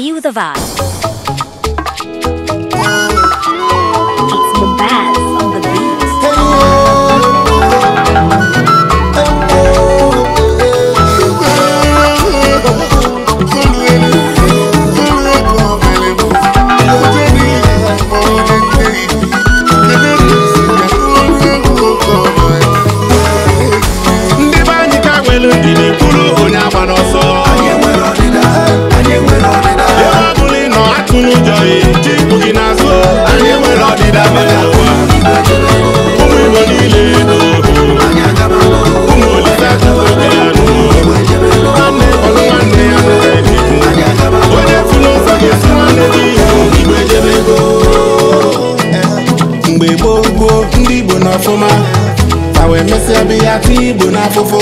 Feel the vibe. ọfụma ka wee mesịa bụ ya igbo n'afụfụ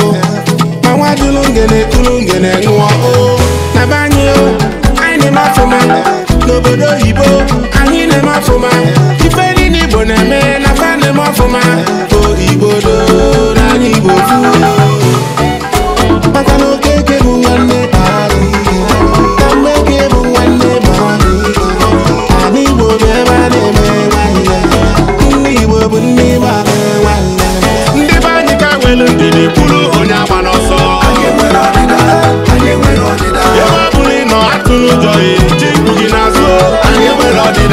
ma nwa jụrụ ngene tụrụ ngene ṅụọ oh. na be anyị oh, anyị na-eme n'obodo oyi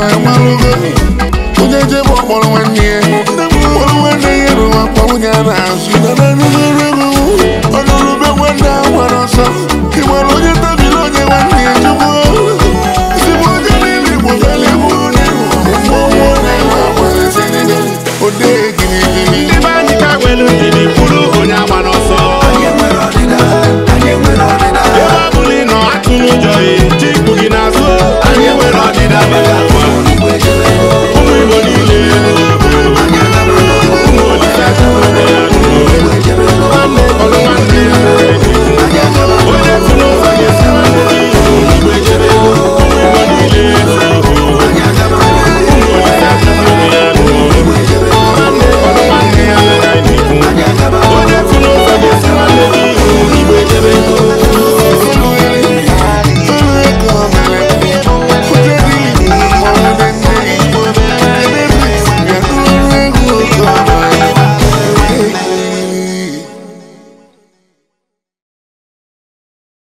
ma malụgo onye jebe ọkpọrọ nwanne ya